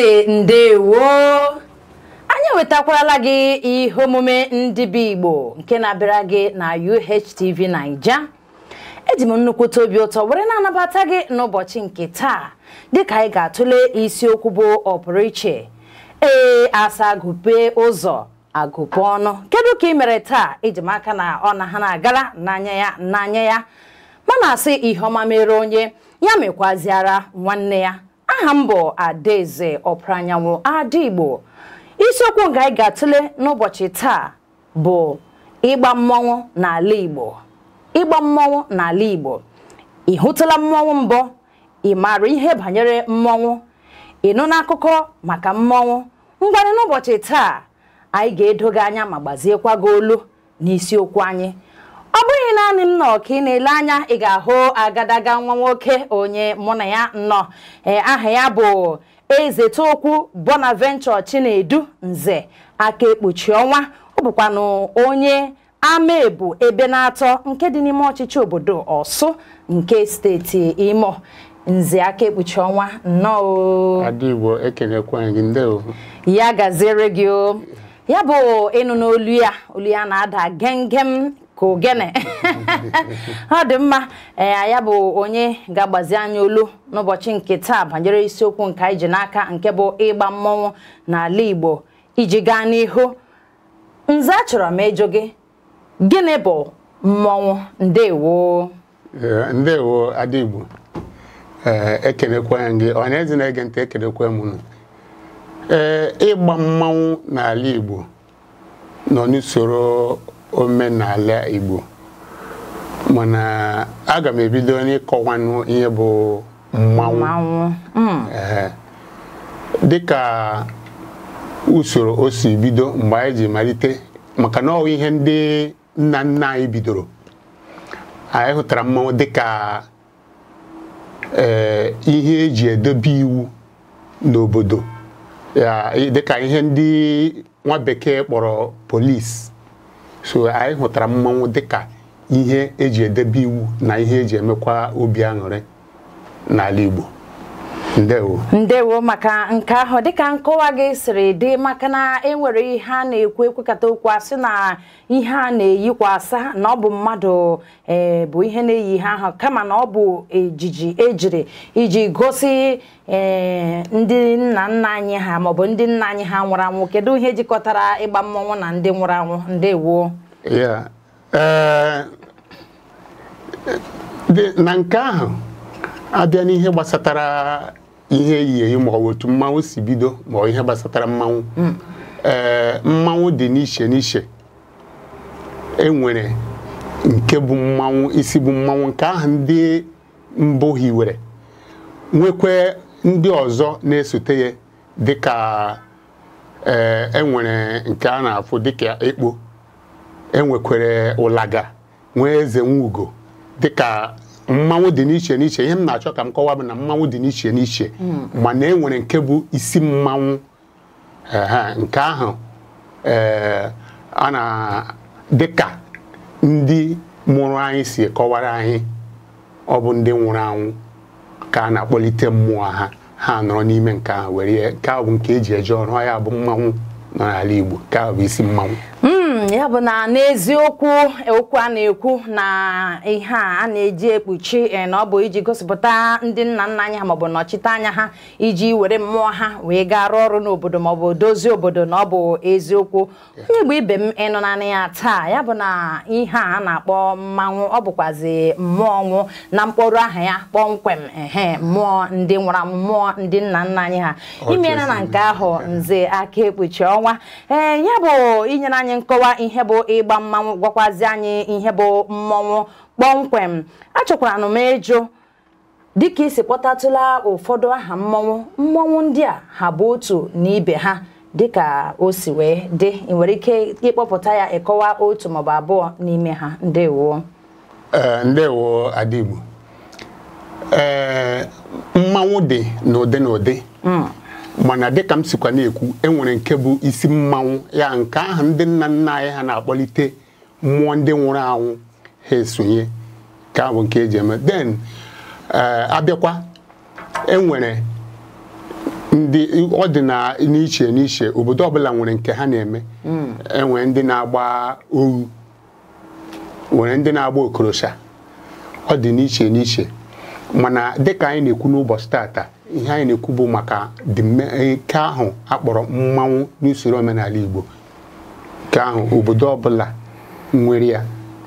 sị ndewo anyị ewetakwala gị ihe omume ndị bi Igbo nke na-abịara gị na UHTV Naija eji m nnukwu obi ụtọ were na-anabata gị n'ụbọchị nke taa dịka anyị ga-atụle isiokwu bụ ọpụrụiche ee asa agụpe ụzọ agụpe ọnụ kedu ka ị mere taa iji m aka na ọ na ha na-agara n'anya ya n'anya ya mana asị ihe ọma mere onye ya mekwaziara nwanne ya aha m bụ Adaeze anyanwụ adaigbo isiokwu nke anyị ga-atụle n'ụbọchị taa bụ ịgba mmọnwụ n'ala Igbo ịgba mmọnwụ n'ala Igbo ị hụtụla mmọnwụ mbụ ị maara ihe banyere mmọnwụ ịnụ n'akụkọ maka mmọnwụ ngwanị n'ụbọchị taa anyị ga-edoga anya ma gbaziekwa gị olu n'isiokwu anyị ọ bụghị naanị m nọ ka ị na-ele anya ị ga-ahụ agadaga nwa nwoke onye mụ na ya nọ aha ya bụ Eze Tokwu Bonaventure Chinedu Nze aka ekpuchi ọnwa ọ bụkwanụ onye amaebu ebe na-atọ nke dị n'ime ọchịchị obodo Ọsụ nke steeti Imo Nze aka ekpuchi ọnwa nnọọ Adigbo ya gaziere gị o ya bụ ịnụ n'olu ya olu ya na-ada gem gem k'ogene ọ dị mma ee ya bụ onye ga-agbazi anya olu n'ụbọchị nke taa banyere isiokwu nke anyị n'aka nke bụ ịgba mmọnwụ n'ala Igbo iji gaa n'ihu nze chọrọ m ịjụ gị gịnị bụ mmọnwụ ndewo ndewo Adigbo ekenekwa gị na-ege ntị ekenekwa ịgba mmanwụ n'ala Igbo nọ n'usoro omenala Igbo mana aga m ebido n'ịkọwanụ ihe bụ mmanwụ hmm. dịka usoro o si bido mgbe anyị ji malite maka na ọ ihe ndị nna nna anyị bidoro anyị hụtara mmanwụ dịka ee eh, ihe eji edobe iwu n'obodo dịka ihe ndị nwa bekee kpọrọ polis so anyị hụtara mmanwụ dịka ihe eji edebe iwu na ihe eji emekwa obi aṅụrị n'ala Igbo ndewo ndewo maka nke ahụ dịka nkọwa gị siri dị maka na enwere ihe a na-ekwu ekwekata okwu asị na ihe a na-eyikwasa na ọ bụ mmadụ eh, bụ ihe na-eyi ihe ahụ kama na ọ bụ ejiji ejiri iji gosi eh, ndị nna nna anyị ha maọbụ ndị nna anyị ha nwụrụ anwụ kedu ihe jikọtara ịgba mmọnwụ na ndị nwụrụ anwụ ndewo eh, na nke ahụ abịa n'ihe gbasatara ihe eyi eyi ma ọ otu mmanwụ si bido ma ọ ihe gbasatara mmanwụ hmm. ee eh, mmanwụ dị n'iche n'iche e nke bụ mmanwụ isi bụ mmanwụ nke ahụ ndị mbụ hiwere nwekwe ndị ọzọ na-esote ya dịka ee eh, enwere nke a na-afụ dịka ekpo enwekwere ụlaga nwee eze nwugo dịka mmanwụ dị n'iche n'iche ihe m na-achọ ka m kọwa bụ na mmanwụ dị n'iche n'iche hmm. mana e nwere nke bụ isi mmanwụ nke ahụ eh, a na ka ndị mụrụ anyị si kọwara anyị ọ bụ ndị nwụrụ anwụ ka a na-akpọlite mmụọ ha ha nọrọ n'ime nke ahụ were nke ahụ bụ nke eji eje ọrụ ya bụ mmanwụ nọ n'ala Igbo nke ahụ bụ isi mmanwụ Hmm, ya bụ na n'eziokwu okwu a na-ekwu na ihe a na-eji ekpuchi eh, na ọ bụ iji gosipụta ndị nna nna anyị ha maọbụ anya ha iji were mmụọ ha wee gaa rụọ ọrụ n'obodo maọbụ dozie obodo na ọ bụ eziokwu onye Igbo ibe m ịnụ naanị ya taa ya bụ na ihe a na-akpọ mmanwụ ọ bụkwazi mmụọ nwụ na mkpọrọ aha ya kpọmkwem ehe mmụọ ndị nwụrụ mmụọ ndị nna nna anyị ha imeela na nke ahụ nze aka ekpuchi ọnwa ee eh, ya bụ inyere anyị nkọwa kọwaa ihe bụ ịgba mmanwụ gwakwazi anyị ihe bụ mmọnwụ kpọmkwem achọkwara m ịjụ dịka isi kpọtatụla ụfọdụ aha mmọnwụ mmọnwụ ndị a ha bụ otu na ibe ha dịka o si wee dị ị nwere ike ịkpọpụta ya ịkọwa otu maọbụ abụọ n'ime ha ndewo ndewo adịgbo ee dị n'ụdị n'ụdị mm. mana dịka m sikwa na-ekwu enwere nke bụ isi mmanwụ ya nke ahụ ndị nna nna anyị ha na-akpọlite mmụọ ndị nwụrụ anwụ ha esonye ka abụ nke eji eme den eh, abịakwa enwere ndị ọ dị na n'iche n'iche obodo ọbụla nwere nke ha na-eme hmm. enwere ndị na-agba oru, nwere ndị na-agba okorosha ọ n'iche mana dịka anyị na-ekwu n'ụbọchị tata ihe anyị na-ekwu bụ maka ike eh, ahụ akpọrọ mmanwụ n'usoro omenala Igbo nke ahụ obodo ọbụla nwere ya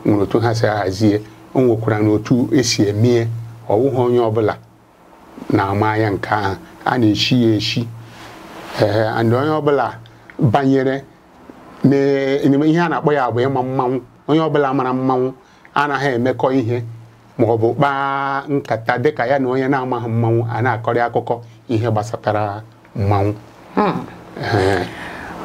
nwere otu ha si ahazie o nwekwara na otu esi emee ọwụghị onye ọbụla na-ama ya nke ahụ a na echi ya echi. ee eh, ndị onye ọbụla banyere ihe a na-akpọ ya bụ ịma mmanwụ onye ọbụla mara mmanwụ anaghị emekọ ihe maọbụ ọ bụ kpaa nkata dịka ya na onye na-amaghị mmanwụ a na-akọrị akụkọ ihe gbasatara mmanwụ hmm.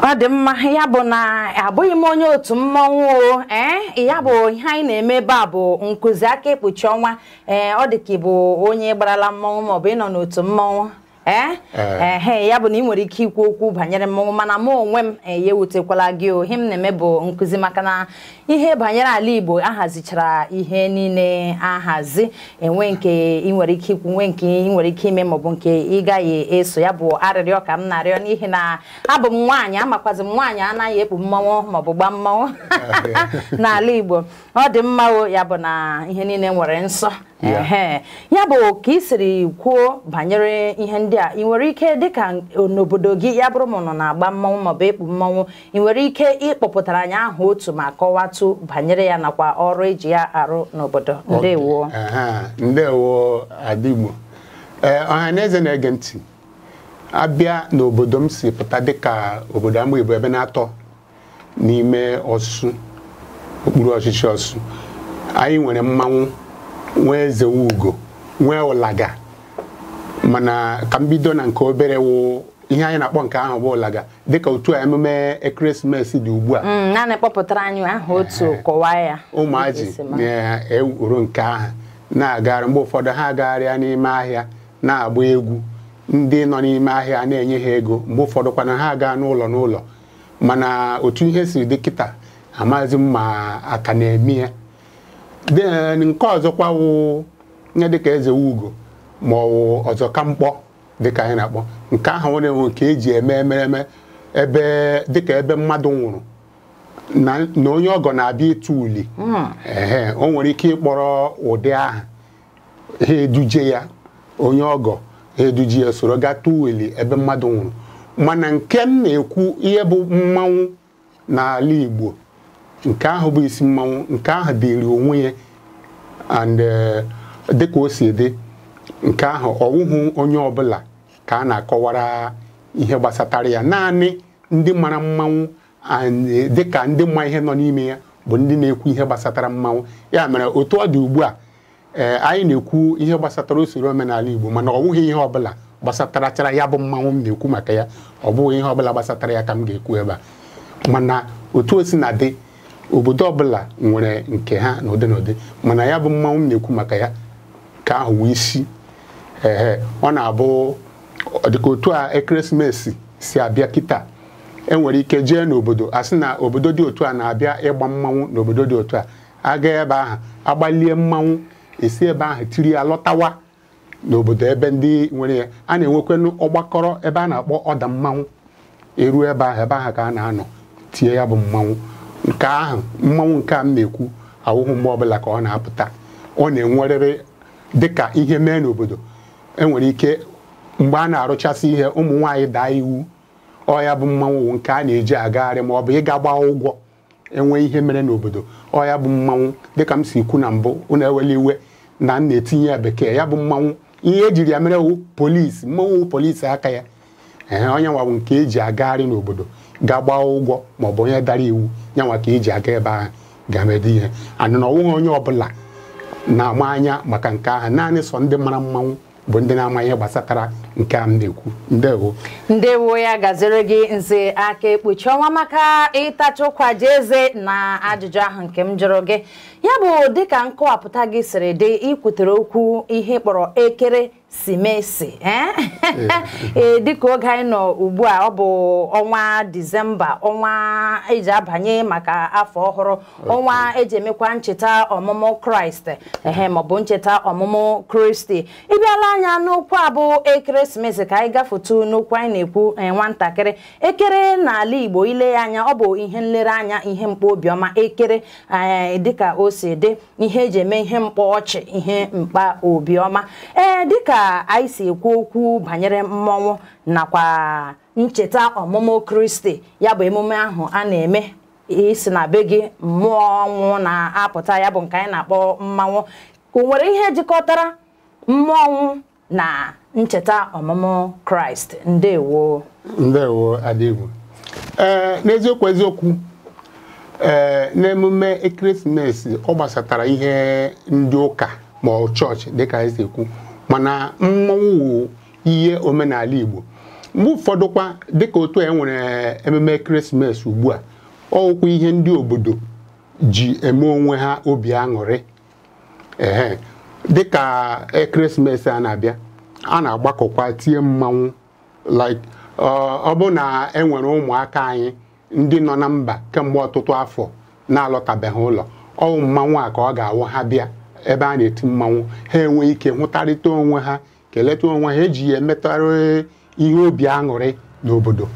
ọ dị mma ya bụ na abụghị m onye otu mmanwụ o ee ya bụ ihe anyị na-eme ebe a bụ nkụzi aka ekpuchi ọnwa ee ọ dị ka ịbụ onye gbarala mmanwụ maọbụ ịnọ n'otu mmanwụ ehe eh. eh, ya bụ na ị nwere ike ikwu okwu banyere mmọnwụ mana mụ onwe m eh, ya ewutekwala gị ohim m na-eme bụ nkụzi maka na ihe banyere ala Igbo ahazichara ihe niile ahazi enwe nke ị nwere ike ikwu nwe nke ị nwere ike ime maọbụ nke ị gaghị eso ya bụ arịrịọ ka m na-arịọ n'ihi na abụ m nwaanyị amakwazi m nwaanyị anaghị ekpu mmọnwụ maọbụ gbaa mmọnwụ n'ala Igbo ọ dị mma ya bụ na ihe niile nwere nsọ ya bụ ka ị siri kwuo banyere ihe ndị a ị nwere ike dịka n'obodo gị ya bụrụ ma nọ na-agba mmọnwụ maọbụ ịkpụ mmọnwụ ị nwere ike ịkpọpụtara anyị aha otu ma kọwatụ banyere ya nakwa ọrụ eji ya arụ n'obodo ndewo ndewo adigbo e, ọha na eze na-ege ntị abịa n'obodo m si pụta dịka obodo amụ ibu ebe na-atọ n'ime ọsụ okpuru ọchịchị ọsụ anyị nwere mmanwụ nwee ugo nwee ụlaga mana ka m bido na nke obere wụ ihe anyị na-akpọ nke ahụ bụ ụlaga dịka otu a emume ekeresimesi dị ugbu a mm, ụmụaji na-ewuru nke ahụ na-agagharị mgbe ụfọdụ ha agagharịa n'ime ahịa na-agba egwu ndị nọ n'ime ahịa na-enye ha ego mgbe ụfọdụ kwana ha gaa n'ụlọ n'ụlọ mana otu ihe siri dị kịta amaghịzi m ma aka na-eme ya nke ọzọkwa wụ nye dịka eze ugo ma ọ wụ ọzọ ka mkpọ dịka anyị na-akpọ nke ahụ nwere nwe nke eji eme emereme ebe dịka ebe mmadụ nwụrụ na onye ọgọ na-abịa ịtụ uli hmm. ee o nwere ike ịkpọrọ ụdị aha ha eduje ya onye ọgọ ha eduje ya soro ga tụọ uli ebe mmadụ nwụrụ mana nke m na-ekwu ihe bụ mmanwụ n'ala Igbo nke ahụ bụ isi mmanwụ nke ahụ dịrị onwe ya and uh, dịka o si dị nke ahụ ọwụhụ onye ọbụla ka a na-akọwara ihe gbasatara ya naanị ndị mara mmanwụ uh, dịka ndị ma ihe nọ n'ime ya bụ ndị na-ekwu ihe gbasatara mmanwụ ya mere otu ọ dị ugbu a ee uh, anyị na-ekwu ihe gbasatara usoro omenala Igbo mana ọ bụghị ihe ọbụla gbasatara ya bụ mmanwụ m na-ekwu maka ya ọ bụghị ihe ọbụla gbasatara ya ka m ga-ekwu ebe a mana otu o si na dị obodo ọbụla nwere nke ha na ụdị mana ya bụ mmanwụ m na-ekwu maka ya ka ahụ wee isi ehe ọ na-abụ dịka otu a ekeresimesi si abịa kịta enwere ike jee n'obodo a sị na obodo dị otu a na-abịa ịgba mmanwụ n'obodo dị otu a aga ebe ahụ agbalie mmanwụ esi ebe ahụ tiri ya lọtawa n'obodo ebe ndị nwere ya a na-enwekwanụ ọgbakọrọ ebe a na-akpọ ọda mmanwụ eruo ebe ahụ ebe ahụ ka a na-anọ tie ya bụ mmanwụ nke ahụ mmanwụ nke a m na-ekwu ahụhụ mgbe ọbụla ka ọ na-apụta ọ na-enwerịrị dịka ihe mee n'obodo enwere ike mgbe a na-arụchasị ihe ụmụ nwaanyị daa iwu ọya bụ mmanwụ nke a na-eji agagharị ma ọ bụ ịga gbaa ụgwọ enwee ihe mere n'obodo ọya bụ mmanwụ dịka m si kwu na mbụ ụnụ ewele iwe na m na-etinye ya bekee ya bụ mmanwụ ihe ejiri ya mere wu polisi mmanwụ polisi aka ya ee onye nwa bụ nke eji agagharị n'obodo ga gbaa ụgwọ maọbụ onye dara iwu nyanwa ka iji aga ebe ahụ ga-emede ihe anụna na ọnwụghị onye ọbụla na-ama anya maka nke ahụ naanị sọ ndị mara mmanwụ bụ ndị na-ama ihe gbasatara nke a m na-ekwu ndewo ndewo ya gaziri gị nze aka ekpuchi ọnwa maka ịtachụkwaje eze na ajụjụ ahụ nke m jụrụ gị ya bụ dịka nkọwapụta gị siri dị ikwutere okwu ihe kpọrọ ekeresimesi ee eh? eh. eh, dịka oge anyị nọ ugbu a ọ bụ ọnwa disemba ọnwa eji abanye maka afọ ọhụrụ ọnwa eji emekwa ncheta ọmụmụ kraịst ehe maọbụ ncheta ọmụmụ kristi ịbịala anya n'okwu a bụ ekeresimesi ka anyị gafetu n'okwu anyị na-ekwu nwatakịrị ekere n'ala igbo ile ya anya ọ bụ ihe nlereanya ihe mkpa obiọma ekere dịka o o si dị ihe eji eme ihe mkpa ọchị ihe mkpa obiọma ee dịka anyị si ekwu okwu banyere mmọnwụ nakwa ncheta ọmụmụ kristi ya bụ emume ahụ a na-eme isi na be gị mmụọ ọnwụ na-apụta ya bụ nke anyị na-akpọ mmanwụ o nwere ihe jikọtara mmọnwụ na ncheta ọmụmụ kraịst ndewo ndewo e, n'eziokwu eziokwu ee n'emume ekeresimesi ọ gbasatara ihe ndị ụka ma ọ chọọchị dịka anyị mana mmọnwụ ihe omenala Igbo mgbe ụfọdụkwa dịka otu e nwere ememe ekeresimesi ugbu a ọwụkwa ihe ndị obodo ji eme onwe ha obi aṅụrị ehe dịka ekeresimesi a na-abịa a na-agbakọkwa tie mmanwụ like ọ bụ na enwere ụmụaka anyị ndị nọ na mba kemgbe ọtụtụ afọ na-alọtabeghị ụlọ ọwụ mmanwụ a ka ọ ga-awụ ha bịa ebe a na-eti mmanwụ ha enwe ike hụtarịta onwe ha keleta onwe ha eji ya emetara ihe obi aṅụrị n'obodo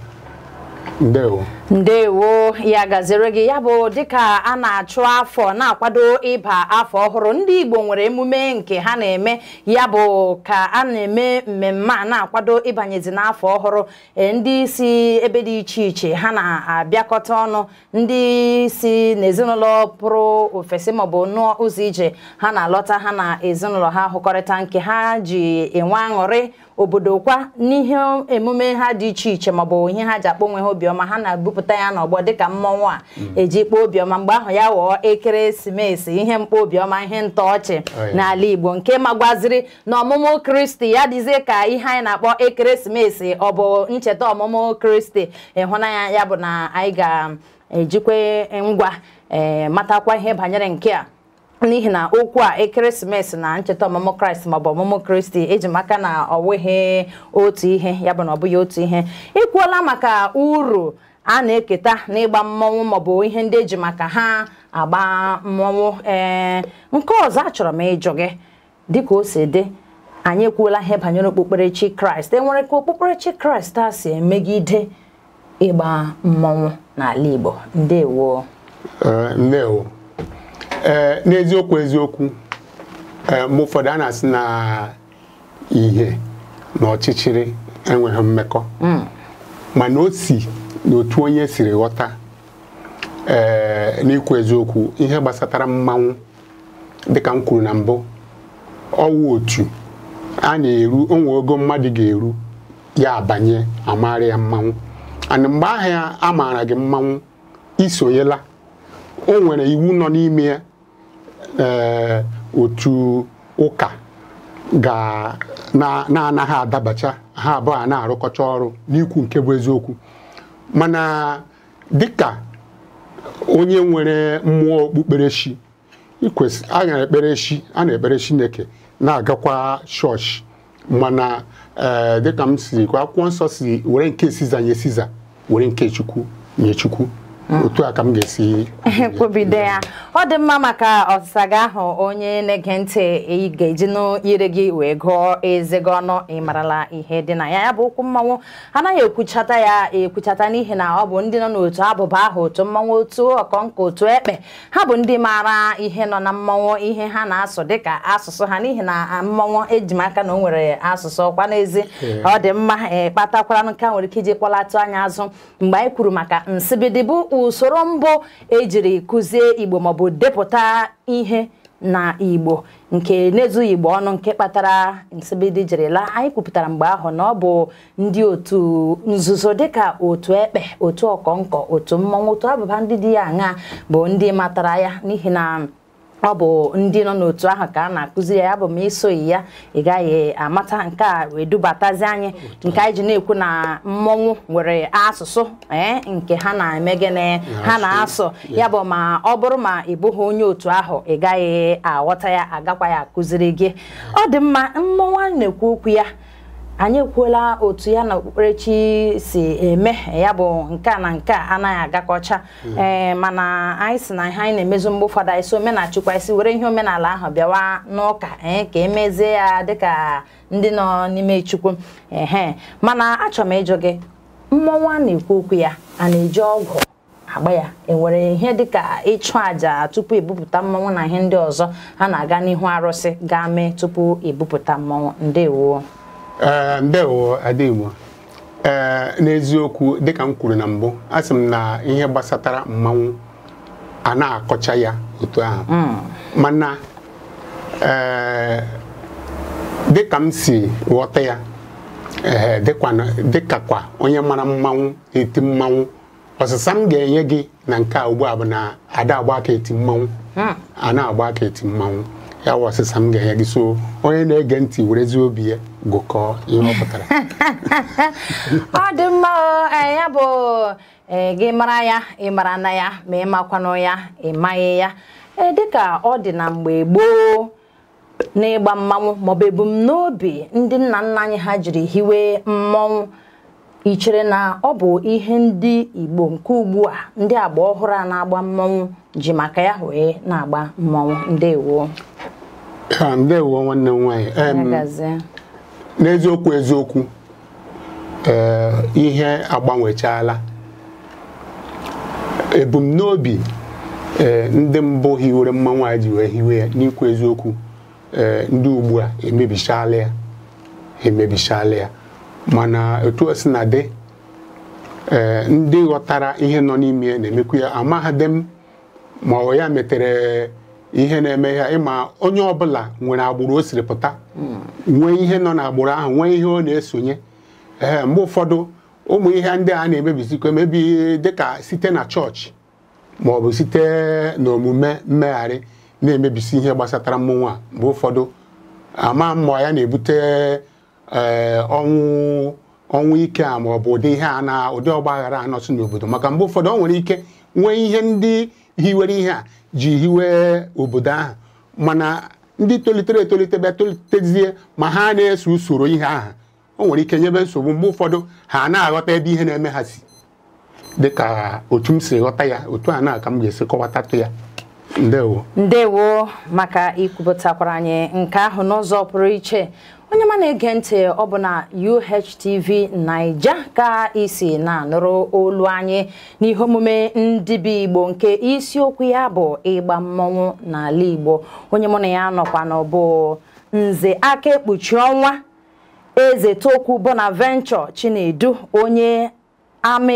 ndewo ndewo ya gaziri gị ya bụ dịka a na-achụ afọ na-akwado ịba afọ ọhụrụ ndị Igbo nwere emume nke ha na-eme ya bụ ka a na-eme mmemme a na-akwado ịbanyezi n'afọ ọhụrụ e, ndị si ebe dị iche iche ha na-abịakọta ọnụ ndị si n'ezinụlọ pụrụ ofesi maọbụ nụọ ụzọ ije ha na-alọta ha na ezinụlọ ha hụkọrịta nke ha ji enwe aṅụrị obodo kwa n'ihe emume ha dị iche iche maọbụ ihe ha ji akpọ onwe ha obiọma ha na-ebupụta mepụta ya n'ọgbọ dịka mmọnwụ a mm. eji kpọọ obiọma mgbe ahụ ya ghọọ ekeresimesi ihe mkpobiọma, ihe ntọọchị oh, n'ala Igbo nke magwaziri na ọmụmụ Kristi ya dịzie ka ihe anyị na-akpọ ekeresimesi ọ bụ ncheta ọmụmụ Kristi ịhụnanya ya bụ na anyị ga-ejikwa ngwa eh, matakwa ihe banyere nke a n'ihi na okwu a ekeresimesi na ncheta ọmụmụ kraịst maọbụ ọmụmụ kristi eji maka na ọ wụghị otu ihe ya bụ na ọ bụghị otu ihe ị maka uru a na-eketa n'ịgba mmọnwụ maọbụ ihe ndị eji maka ha agba mmọnwụ ee nke ọzọ a chọrọ m ịjụ gị dịka o si dị anyị ekwuola ihe banyere okpukperechi kraịst enwere ka okpukperechi kraịst a si emegide ịgba mmọnwụ n'ala igbo ndewo ndewo ee n'eziokwu eziokwu e, ụfọdụ a na-asị na ihe na ọchịchịrị enweghị mmekọ mm. mana o si n'otu onye siri ghọta ee eh, n'ikwu eziokwu ihe gbasatara mmanwụ dịka m kwuru na mbụ ọwụ otu a na-eru onwe ogo mmadụ ga-eru ya abanye amara ya mmanwụ ana mgbe ahịa a maara gị mmanwụ isonyela o nwere iwu nọ n'ime eh, otu ụka ga na-anaghị adabacha ha abụọ a na-arụkọcha ọrụ n'ikwu nke bụ eziokwu mana dịka onye nwere mmụọ okpukperechi a na-ekpere chi a na-ekpere chineke na-agakwa chọọchị mana eh, dịka m siri akwụkwọ nsọ si were nke siza nye siza were nke chukwu nye Ah. otu a ka m ga-esi kwubide ya ọ dị mma maka ọsịsa gị ahụ onye na-ege ntị ị ga-eji n'ire gị wee gụọ gị ọnụ ịmarala ihe dị na ya ya bụ okwu mmanwụ anaghị ekwuchata ya ekwuchata n'ihi na ọ bụ ndị nọ n'otu abụba ahụ otu mmanwụ otu ọkọnkọ otu ekpe ha bụ ndị maara ihe nọ na mmanwụ ihe ha na-asụ dịka asụsụ ha n'ihi na mmanwụ ejimaka na o nwere asụsụ ọkwa n'ezi ọ dị mma e nke a nwere ike iji kpọlatụ anya azụ mgbe anyị kwuru maka nsibidi bụ usoro mbụ ejiri kụzie igbo maọbụ depụta ihe na igbo nke na igbo ọnụ nke kpatara nsibidi anyị kwupụtara mgbe ahụ na ọ bụ ndị otu nzuzo dịka otu ekpe otu ọkọnkọ otu mmọnwụ otu abụba ndị dị ya aṅa bụ ndị matara ya n'ihi na ọ bụ ndị nọ n'otu ahụ ka a na-akụziri ya bụ m isoghi ya ị gaghị amata nke a wee dubatazi anyị nke anyị ji na-ekwu na mmọnwụ nwere asụsụ ee eh, nke ha na-eme gịnị ha na-asụ ya bụ ma ọ bụrụ ma ị bụghị onye otu ahụ ị gaghị aghọta ya agakwa ya akụziri gị ọ dị mma mmọnwụ na-ekwu okwu ya anyị ekwuola otu ya na okpukperechi si eme ya bụ nke a na nke a anaghị agakọcha hmm. ee eh, mana anyị si na ihe anyị na-emezu mgbe ụfọdụ anyị si omenachukwu anyị were ihe omenala ahụ bịawa n'ụka eh, ka emezie ya dịka ndị nọ n'ime chukwu ehe mana achọrọ m ịjụ gị mmọnwụ a na-ekwu okwu ya a na-eji ọgwụ agba ya enwere ihe dịka ịchụ àjà tupu ebupụta mmọnwụ na ihe ndị ọzọ ha na-aga n'ihu arụsị gaa mee tupu ebupụta mmọnwụ ndewo Eh, ndewo adịgbo ee eh, n'eziokwu dịka m kwuru na mbụ a sị m na ihe gbasatara mmanwụ a na-akọcha ya otu ahụ hmm. mana eh, dịka m si ghọta ya ee dịka kwa onye mara mmanwụ eti mmanwụ ọsịsa m ga-enye gị na nke a ugbu a bụ na ada agba aka eti mmanwụ hmm. a na-agba aka eti mmanwụ ya wụ ọsịsa m ga-enye gị so onye na-ege ntị werezi obi ya gụkọọ ihe ọ pụtara ọ dị mma e, ya bụ e, gị mara ya ị mara na ya ma ị makwanụ ya ị maghị ya e, dịka ọ dị na mgbe gboo n'ịgba mmanwụ maọbụ ebumnobi ndị nna nna anyị ha jiri hiwe mmọnwụ ichere na ọ bụ ihe ndị Igbo nke ugbu a ndị agba ọhụrụ a na-agba mmọnwụ ji maka ya wee na-agba mmọnwụ ndewo ndewo nwanne m nwanyị n'eziokwu eziokwu eh, ihe agbanwechala. ebumnobi eh, ndị mbụ hiwere mmanwụ anyị ji wee hiwe ya n'ikwu eziokwu eh, ndị ugbu a emebichala ya emebichala ya mana otu o na dị ndị ghọtara ihe nọ n'ime ya na-emekwu ya amaghadị m ma ọ ya metere ihe na-eme ya ịma onye ọbụla nwere agbụrụ o siri pụta nwee ihe nọ n'agbụrụ ahụ nwee ihe ọ na-esonye ee mgbe ụfọdụ ụmụ ihe ndị a na-emebizikwa emebi dịka site na chọọchị ma ọ bụ site n'omume mmegharị na-emebisi ihe gbasatara mmụnwa a mgbe ụfọdụ ama mmụọ ya na-ebute eh, ọnwụ ọnwụ ike a ma ọ bụ ụdị ihe a na ụdị ọgba aghara anọsụ n'obodo maka mgbe ụfọdụ ọ nwere ike nwee ihe ndị hiwere ihe a ji hiwe obodo ahụ mana ndị tolitere etolite bịa tolitezie ma ha na-eso usoro ihe ahụ o nwere ike nyebe nsogbu mgbe ụfọdụ ha na-aghọta ebe ihe na-eme ha si dịka otu m si ghọta ya otu a na ka m ga-esi kọwatatụ ya ndewo ndewo maka ikwupụtakwara anyị nke ahụ n'ụzọ pụrụ iche onye ma na-ege ntị ọ bụ na UHTV Naija ka isi na-anụrụ olu anyị n'ihe omume ndị bi Igbo nke isiokwu ya bụ ịgba mmọnwụ n'ala Igbo onye mụ na ya nọkwa bụ nze aka ekpuchi ọnwa eze tokwu Bonaventure Chinedu onye ama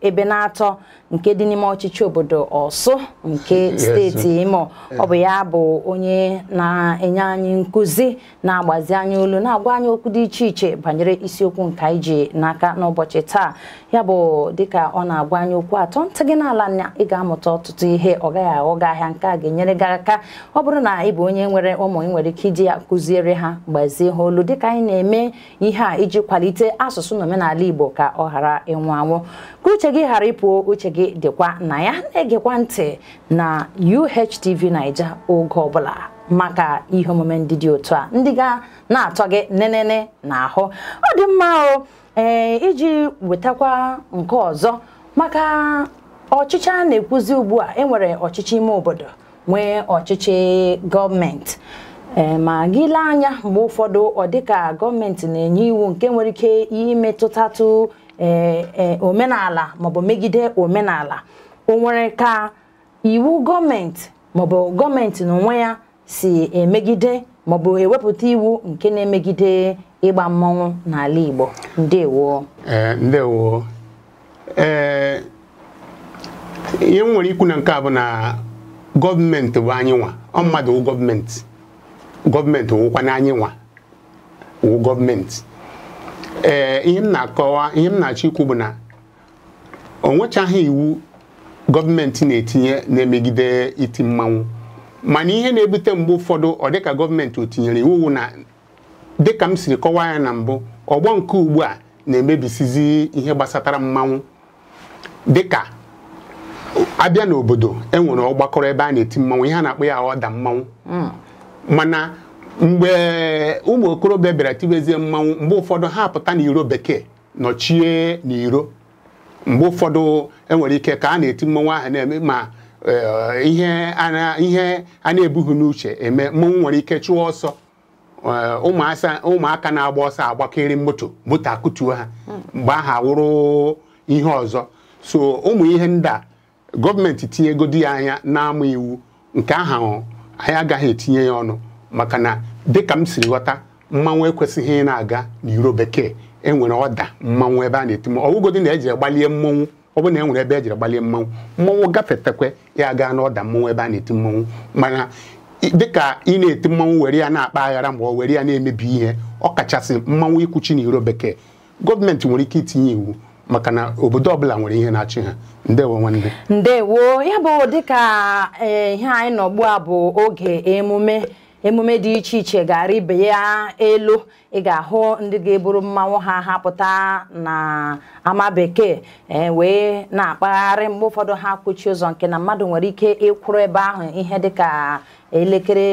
ebe na-atọ nke dị n'ime ọchịchị obodo ọsụ nke steeti imo ọ bụ ya bụ onye na-enye anyị nkụzi na-agbazi anyị olu na-agwa anyị okwu dị iche iche banyere isiokwu nke anyị ji n'aka n'ụbọchị taa ya bụ dịka ọ na-agwa anyị okwu atọ ntị gị n'ala na ị ga-amụta ọtụtụ ihe ọ gaghị aghọ gị ahịa nke a ga-enyere gị aka ọ bụrụ na ị bụ onye nwere ụmụ ị nwere ike iji ya kụziere ha gbazie ha olu dịka anyị na-eme ihe a iji kwalite asụsụ na omenala igbo ka ọ ghara ịnwụ anwụ anwụ ka uche gị ghara ịpụo uche gị dịkwa na ya na-egekwa ntị na UHTV Naija oge ọbụla maka ihe omume ndị dị otu a ndị ga na-atọ gị nenene na ahụ ọ dị mma o ee eh, iji wetakwa nke ọzọ maka ọchịchị a na-ekwuzi ugbu a enwere ọchịchị ime obodo nwee ọchịchị gọọmenti eh, ma gị lee anya mgbe ụfọdụ ọ dịka gọọmenti na-enye iwu nke nwere ike imetụtatụ Eh, eh, omenala maọbụ megide omenala o nwere ka iwu gọọmenti maọbụ gọọmenti na onwe ya si emegide maọbụ ewepụta iwu nke na-emegide ịgba mmọnwụ n'ala Igbo ndewo eh, ndewo ee ihe m nwere ikwu na nke a bụ na gọọmenti bụ anyị nwa ọ mmadụ wụ gọọmenti gọọmenti wụkwa wụ gọọmenti ee eh, ihe m na-akọwa ihe m na-achọ ikwu bụ na o nwechaghị iwu gọọmenti na-etinye na-emegide iti mmanwụ mana ihe na-ebute mgbe ụfọdụ ọ dịka gọọmenti o tinyere iwu na dịka m siri kọwaa ya na mbụ ọgbọ nke ugbu a na-emebisizi ihe gbasatara mmanwụ dịka abịa n'obodo enwere ọgbakọrọ ebe a na-eti mmanwụ ihe a na-akpọ ya ọda mmanwụ hmm. mana mgbe ụmụ okorobịa bịara tibezie mmanwụ mgbe ụfọdụ ha apụta n'iro bekee nọchie n'iro mgbe ụfọdụ enwere ike ka a na-eti mmanwụ ahụ na-eme ma e, ihe a na-ebughị n'uche eme mmanwụ nwere ike chụọ ọsọ e, ụmụaka na-agba ọsọ agbakeri moto moto akụtuo ha mgbe ahụ awụrụ ihe ọzọ so ụmụ ihe ndị a gọọmenti tinye ego di ya anya na iwu nke ahụ anyị agaghị etinye ya ọnụ maka na dịka m siri ghọta mmanwụ ekwesịghị ị na-aga n'iro bekee enwere ọda mmanwụ ebe a na-eti mmanwụ na eji gbalie mmanwụ ọ bụrụ na e ebe ejiri gbalie mmanwụ mmanwụ gafetekwe ya gaa n'ọda mmanwụ ebe a na-eti mmanwụ mana dịka ị na-eti mmanwụ were ya na-akpa aghara ma ọ were ya na-emebi ihe ọ kachasị mmanwụ ikwuchi n'iro bekee gọọmenti nwere ike itinye iwu maka na obodo ọbụla nwere ihe na-achị ha ndewo nwanne ndewo ya bụ dịka eh, ihe anyị nọ ugbu a bụ oge emume emume dị iche iche gara ibe ya elu ị ga-ahụ ndị ga-eburu mmanwụ ha hapụta na ama bekee e wee na-akpagharị mgbe ụfọdụ ha kpuchie ụzọ nke na mmadụ nwere ike ịkwụrụ ebe ahụ ihe dịka elekere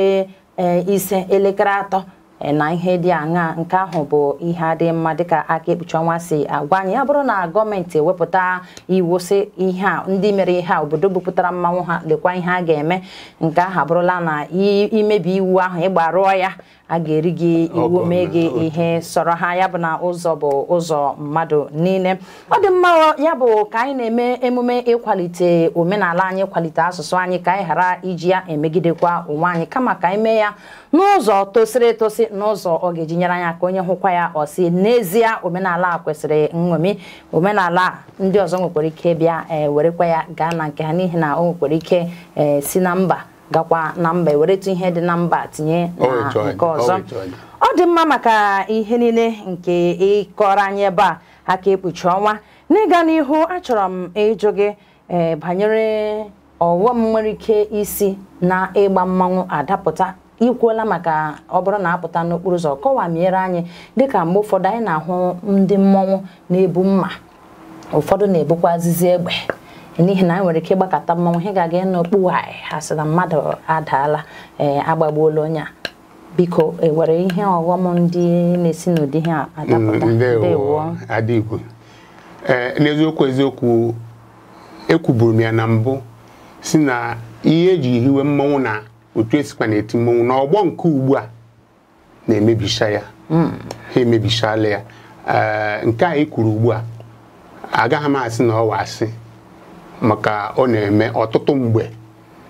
e, ise elekere atọ Eh, na ihe dị aṅa nke ahụ bụ ihe adị mma dịka aka ekpuchi ọnwa si agwa anyị ya bụrụ na gọọmenti wepụta iwu si ihe a ndị mere ihe a obodo bupụtara mmanwụ ha lekwa ihe a ga-eme nke ahụ abụrụla na imebi iwu ahụ rụọ ya a ga-eri gị iwu mee gị ihe sọrọ ha ya bụ na ụzọ bụ ụzọ mmadụ niile ọ dị mma ya bụ ka anyị na-eme emume ịkwalite omenala anyị kwalite asụsụ anyị ka anyị ghara iji ya emegidekwa onwe anyị kama ka anyị mee ya n'ụzọ tosiri etosi n'ụzọ ọ ga-eji nyere anya aka onye hụkwa ya ọ si n'ezie omenala a kwesịrị nṅomi omenala ndị ọzọ nwekwara ike bịa e, werekwa ya gaa na nke ha n'ihi na o nwekwara ike e, si na mba gakwa na mba eweretụ ihe dị na mba tinye na nke ọzọ ọ dị mma maka ihe niile nke ịkọrọ anyị ebe a aka ekpuchi ọnwa n'ịga n'ihu achọrọ m ịjụ gị e, banyere ọghọm nwere ike isi na ịgba mmanwụ adapụta ikwuola maka ọ bụrụ na apụta n'okpuru ụzọ kọwamiere anyị dịka mgbe ụfọdụ anyị na-ahụ ndị mmọnwụ na-ebu mma ụfọdụ na ebukwa azịzi egbe n'ihi na anyị nwere ike ịgbakọta mmọnwụ ihe ga-aga n'okpu anyị ha na mmadụ adaala ee eh, agbagbuola onye a biko enwere ihe ọghọm ndị na-esi n'ụdị ihe adapụta mm, eh, n'eziokwu eziokwu ekwuburu m ya na mbụ si na ihe eji hiwe mmọnwụ na otu esikwa na-eti mmọnwụ na ọgbọ nke ugbu a na-emebicha ya hmm. ha emebichala ya eh, nke a e kwuru ugbu a agaghị m asị na ọwa asị maka ọ na-eme ọtụtụ mgbe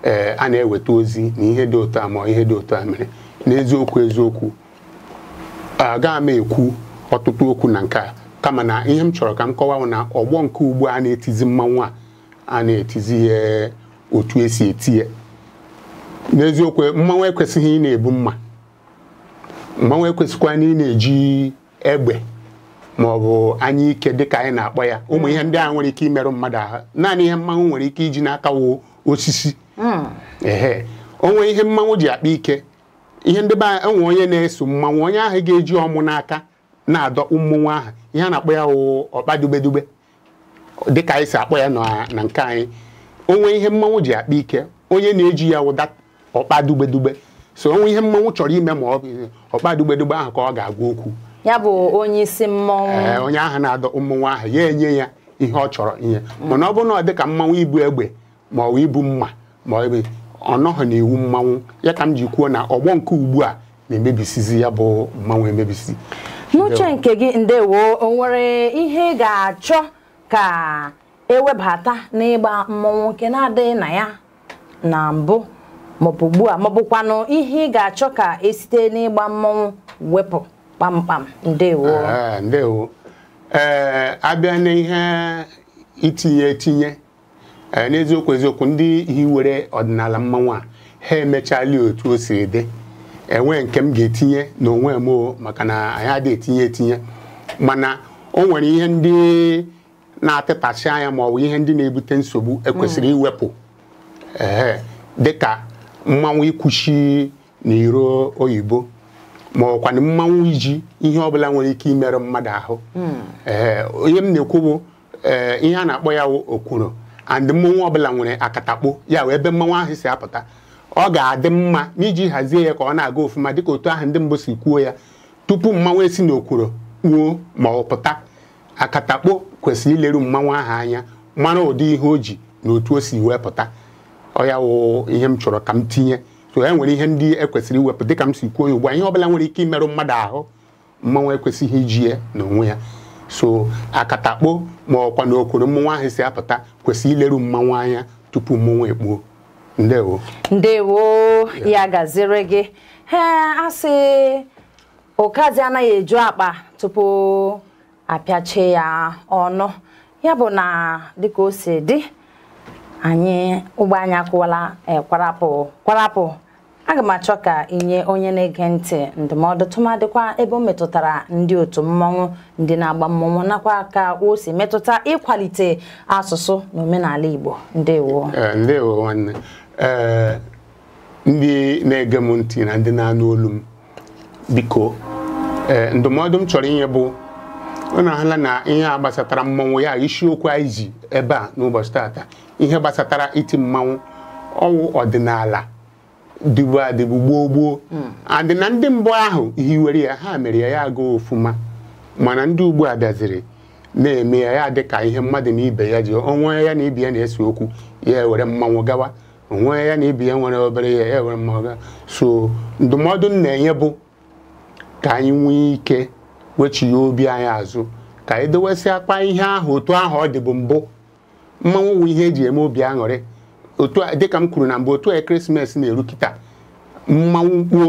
ee eh, a na-eweta ozi na ihe dị ụtọ a ma ihe dị ụtọ a mere n'eziokwu eziokwu agaghị m ekwu ọtụtụ okwu na nke a kama na ihe m chọrọ ka m kọwa na ọgbọ nke ugbu a na-etizi mmanwụ a a na-etizi ya otu esi eti ya n'eziokwu mmanwụ ekwesịghị ị na-ebu mma mmanwụ ekwesịkwa na ị na-eji egbe ma ọ bụ anya ike dịka anyị na-akpọ ya ụmụ ihe ndị ahụ nwere ike imerụ mmadụ ahụ naanị ihe mmanwụ nwere ike iji n'aka wo osisi hmm. ehe onwe ihe mmanwụ ji akpa ike ihe ndị be enwe onye na-eso mmanwụ onye ahụ ga-eji ọmụ n'aka na-adọkpụ ụmụnwa ahụ ihe a na-akpọ ya wụ ọkpa dubedube dịka anyị si akpọ ya na nke anyị onwe ihe mmanwụ ji akpa ike onye na-eji ya wụ ọkpa so onwe ihe mmọnwụ chọrọ ime ma ọkpa ọkpadugbedugbe ahụ ka ọ ga-agwa okwu ya bụ onye isi mmọnwụ onye ahụ na-adọ mmọnwụ ahụ ya enye ya ihe ọ chọrọ ihe mana ọ bụrụ na ọ dị ka mmanwụ ibu egbe ma ọ ibu mma ma ọ ọnọghị na iwu mmanwụ ya ka m ji kwuo na ọgbọ nke ugbu a na-emebisizi ya bụ mmanwụ emebisi n'uche nke gị ndewo o nwere ihe ga-achọ ka ewebata n'ịgba mmọnwụ nke na-adịghị na ya na mbụ maọbụ ugbu a maọbụkwanụ ihe ị ga-achọ ka esite n'ịgba mmọnwụ wepụ kpamkpam ndewo ndewo ee abịa n'ihe itinye etinye n'eziokwu eziokwu ndị hiwere ọdịnala mmanwụ a ha emechali otu o siri dị enwe nke m ga-etinye n'onwe m maka na anyị adịghị etinye etinye mana o nwere ihe ndị na-atịtasị anya ma ọ bụ ihe ndị na-ebute nsogbu ekwesịrị mm. iwepụ ee dịka mmanwụ ikwuchi na iro oyibo ma ọkwanụ mmanwụ iji ihe ọbụla nwere ike imerụ mmadụ ahụ hmm. ee eh, onye m na-ekwu bụ ee eh, ihe a na-akpọ ya okwuru and mmanwụ ọbụla nwere akatakpo ya wee ebe mmanwụ ahụ si apụta ọ ga-adị mma n'iji hazie ya ka ọ na-aga ofụma dịka otu ahụ ndị mbụ si kwuo ya tupu mmanwụ esi n'okwuru kpuo ma ọ pụta akatakpo kwesịrị ileru mmanwụ ahụ anya mara ụdị ihe o ji na otu o si wee pụta ọya wụ ihe m chọrọ ka m tinye so e nwere ihe ndị ekwesịrị iwepụ dịka m si kwuo ya ugbu a ihe ọbụla nwere ike imerụ mmadụ ahụ mmanwụ ekwesịghị iji ya n'onwe ya so akatakpo ma ọkwa na okoro mmanwụ ahụ si apụta kwesịrị ileru mmanwụ anya tupu mmanwụ ekpuo ndewo ndewo ya gaziri gị ee asị okazi anaghị eju akpa tupu apịachie ya ọnụ ya bụ na dịka o si dị anyị ụgbọ anyị akụwala e, kwarapụ kwarapụ aga m achọ ka inye onye na-ege ntị ndụmọdụ tụmadịkwa ebe o metụtara ndị otu mmọnwụ ndị na-agba mmọnwụ nakwa ka o si metụta ịkwalite asụsụ na omenala Igbo ndewo e, ndewo e, ndị na-ege m ntị na ndị na-anụ olu m biko ndụmọdụ m chọrọ inye bụ na-ahala na ihe a gbasatara mmanwụ ya isiokwu anyị ji ebe a n'ụbọchị tata ihe gbasatara iti mmanwụ ọwụ ọdịnala dịbu adịbu gboo gboo hmm. adị na ndị mbụ ahụ hiwere ya ha mere ya ya agụ ofuma mana ndị ugbu a bịaziri na-eme ya ya dịka ihe mmadụ na ibe ya ji onwe ya na ibe ya na-ese okwu ya were mmanwụ gawa onwe ya na ibe ya nwere obere ya ya were mmanwụ gawa so ndụmọdụ m na-enye bụ ka anyị nwee ike wechighe obi anyị azụ ka anyị dowesị akpa ihe ahụ otu ahụ ọ dị bụ mbụ mmanwụ wụ ihe eji eme obi aṅụrị otu dịka m kwuru na mbụ otu ekeresimesi na-eru kịta mmanwụ kpuo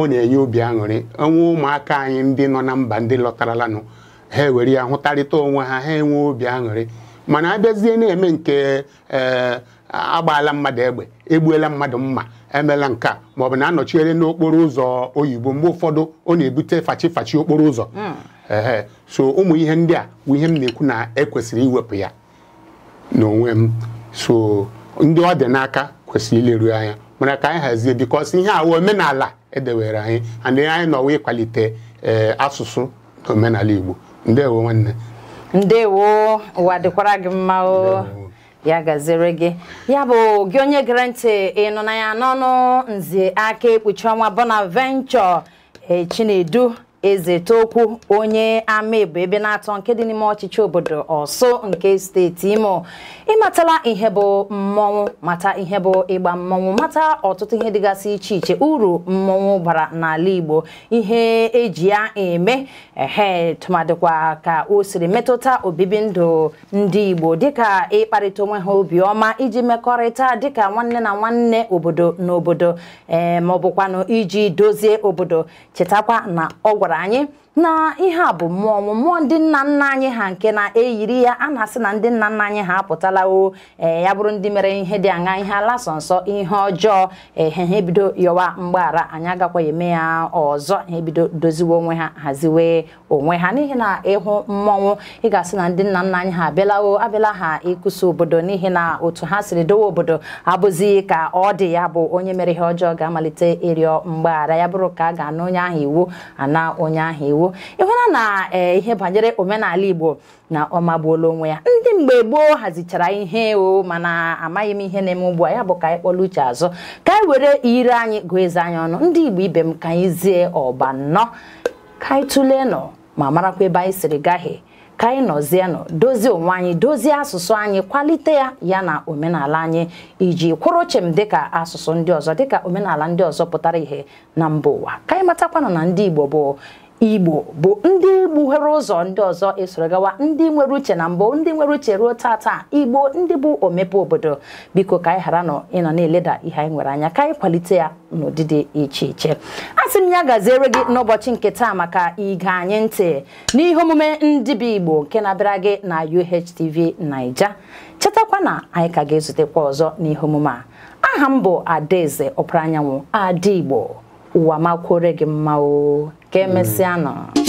ọ na-enye obi aṅụrị ọnwa ụmụaka anyị ndị nọ na mba ndị lọtaralanụ ha ewere ya hụtarịta onwe ha ha enwe obi aṅụrị mana abịazie na-eme nke ee eh, agbaala mmadụ egbe egbuela mmadụ mma emela nke a maọbụ na anọchiere n'okporo ụzọ oyibo mgbe ụfọdụ ọ na-ebute fachi fachi okporo ụzọ hmm. ee so ụmụ ihe ndị a bụ ihe m na-ekwu na ekwesịrị iwepụ ya n'onwe m so ndị ọ dị n'aka kwesịrị ileru anya mana ka anyị hazie bikọs ihe awa omenala edewere anyị anyị anyị nọwa ịkwalite ee eh, asụsụ na omenala Igbo ndewo nwanne ndewo ụwa dịkwara gị mma o ya gazere gị ya bụ gị onye gere ntị ị ya n'ọnụ nzi aka ekpuchi ọnwa Bonaventure Chinedu Ezetokwu onye amaebo ebe na-atọ nke dị n'ime ọchịchị obodo Ọsụ nke steeti Imo ịmatala ihe bụ mmọnwụ mata ihe bụ ịgba mmọnwụ mata ọtụtụ ihe dịgasị iche iche uru mmọnwụ bara n'ala Igbo ihe eji ya eme ehe tụmadịkwa ka o siri metụta obibi ndụ ndị Igbo dịka ịkparịta onwe ha obiọma iji mekọrịta dịka nwanne na nwanne obodo na obodo ee eh, maọbụkwanụ iji dozie obodo chetakwa na ọ gwara vzdelávanie na ihe a bụ mmụọ mmụọ ndị nna nna anyị ha nke na-eyiri ya a na-asị na ndị nna nna anyị ha apụtala o eh, ya bụrụ ndị mere ihe dị aṅa ihe ala sọ nsọ ihe ọjọọ ehe eh, ha ebido yọwa mgbaghara anyị agakwa eme ya ọzọ ha ebido doziwe onwe ha haziwe onwe ha n'ihi na ịhụ mmọnwụ ị ga-asị na ndị nna nna anyị ha abịalao abịala ha ịkụsa obodo n'ihi na otu ha siri dowe obodo abụzi ka ọ dị ya bụ onye mere ihe ọjọọ ga-amalite ịrịọ mgbaghara ya bụrụ ka a ga-ana onye ahụ iwu ana onye ahụ iwu igbo ịhụla na e, ihe banyere omenala igbo na ọmagbuola onwe ya ndị mgbe gboo hazichara ihe o mana amaghị m ihe na-eme ugbu a ya bụ ka anyị uche azụ ka anyị were ire anyị gụọ eze anyị ọnụ ndị igbo ibe m ka anyị zie ọba nnọọ ka anyị tụlee nọ ma marakwa ebe anyị siri gaghị ka anyị nọ dozie onwe anyị dozie asụsụ anyị kwalite ya ya na omenala anyị iji kwụrụ dị dịka asụsụ ndị ọzọ dịka omenala ndị ọzọ pụtara ihe na mba ụwa ka anyị matakwanụ na ndị Igbo bụ igbo bụ ndị gbuhere ụzọ ndị ọzọ esoro gawa ndị nwere uche na mbụ ndị nwere uche ruo taa taa igbo ndị bụ omepe obodo biko ka anyị ghara nọ ịnọ na-eleda ihe anyị nwere anya ka anyị kwalite ya n'ụdị dị iche iche a sị m ya gaziere gị n'ụbọchị nke taa maka ige anyị ntị n'ihe omume ndị bụ igbo nke na-abịara gị na UHTV Naija chetakwa na anyị ka ga-ezutekwa ọzọ n'ihe omume a aha m bụ adaeze ọpara anyanwụ adaigbo igbo ụwa makwuore gị mma ka emesịa mm.